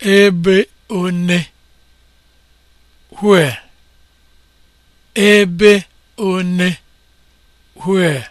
ebe one where ebe one where